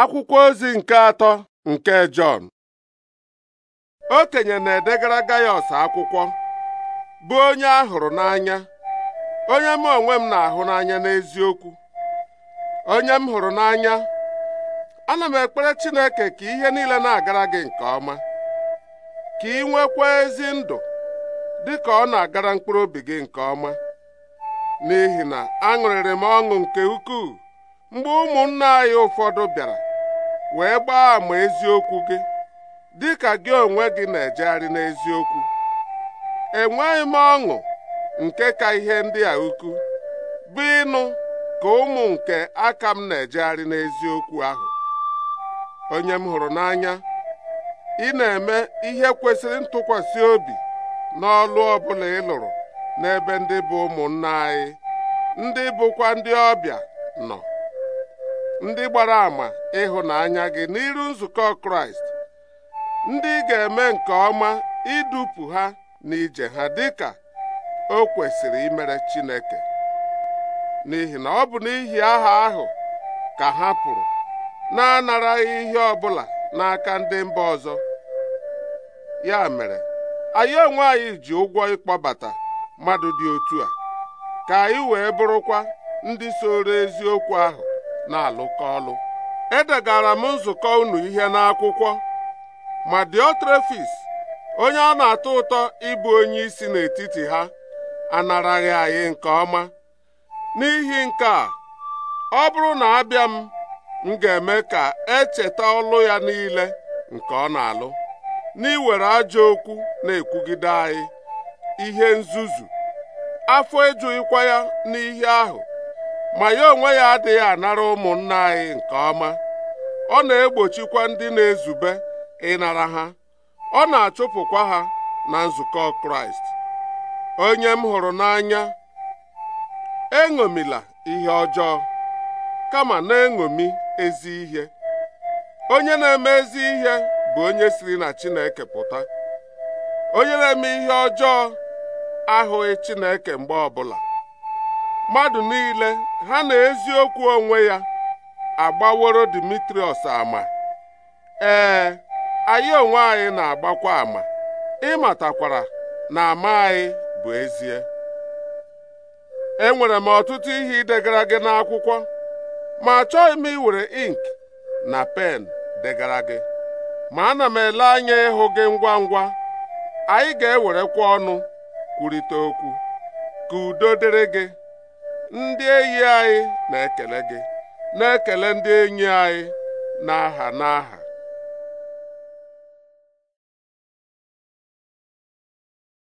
akwụkwọ ozi nke atọ nke Jọn okenye na-edegara Gaiọs akwụkwọ bụ onye a hụrụ n'anya onye m onwe m na-ahụ n'anya n'eziokwu onye m hụrụ n'anya ana m ekpere Chineke ka ihe niile na-agara gị nke ọma ka ị nwekwa ezi ndụ dị ka ọ na-agara mkpụrụ obi gị nke ọma n'ihi na aṅụrịrị m ọṅụ nke ukwuu mgbe ụmụnna anyị ụfọdụ bịara wee gbaa àmà eziokwu gị dị ka gị onwe gị na-ejegharị n'eziokwu enweghị m ọṅụ nke ka ihe ndị a ukwu bụ ịnụ ka ụmụ nke aka m na-ejegharị n'eziokwu ahụ onye m hụrụ n'anya ị na-eme ihe kwesịrị ntụkwasị obi n'ọlụ ọbụla ị lụrụ n'ebe ndị bụ ụmụnna anyị ndị bụkwa ndị ọbịa nọ ndị gbara ama ịhụnanya gị n'iru nzukọ Kraịst ndị ga-eme nke ọma idupụ ha n'ije ha dịka o kwesịrị imere Chineke n'ihi na ọ bụ n'ihi aha ahụ ka ha pụrụ na-anaraghị ihe ọ bụla n'aka ndị mba ọzọ ya mere anyị onwe anyị ji ụgwọ ịkpọbata mmadụ dị otu a ka anyị wee bụrụkwa ndị soro eziokwu ahụ na-alụkọ ọlụ edegara m nzukọ unu ihe n'akwụkwọ ma Diotrefis onye ọ na-atọ ụtọ ịbụ onye isi n'etiti ha anaraghị anyị nke ọma n'ihi nke a ọ bụrụ na abịa m m ga-eme ka echeta ọlụ ya niile nke ọ na-alụ n'iwere ajọ okwu na-ekwugide anyị ihe nzuzu afọ ejughịkwa ya n'ihe ahụ ma ya onwe ya adịghị anara ụmụnna anyị nke ọma ọ na-egbochikwa ndị na-ezube ịnara ha ọ na-achụpụkwa ha na nzukọ kraịst onye m hụrụ n'anya eṅomila ihe ọjọọ kama na-eṅomi ezi ihe onye na-eme ezi ihe bụ onye siri na chineke pụta onye na-eme ihe ọjọọ ahụghị chineke mgbe ọbụla mmadụ niile ha na eziokwu onwe ya agbaworo dimitrius ama ee anyị onwe anyị na-agbakwa ama ịmatakwara na ama anyị bụ ezie enwere m ọtụtụ ihe idegara gị n'akwụkwọ ma achọghị m iwere ink na pen degara gị ma ana m ele anya ịhụ gị ngwa ngwa anyị ga-ewerekwa ọnụ kwurịta okwu ka udo dịrị gị ndị enyi anyị na-ekele gị na-ekele ndị enyi anyị n'aha n'aha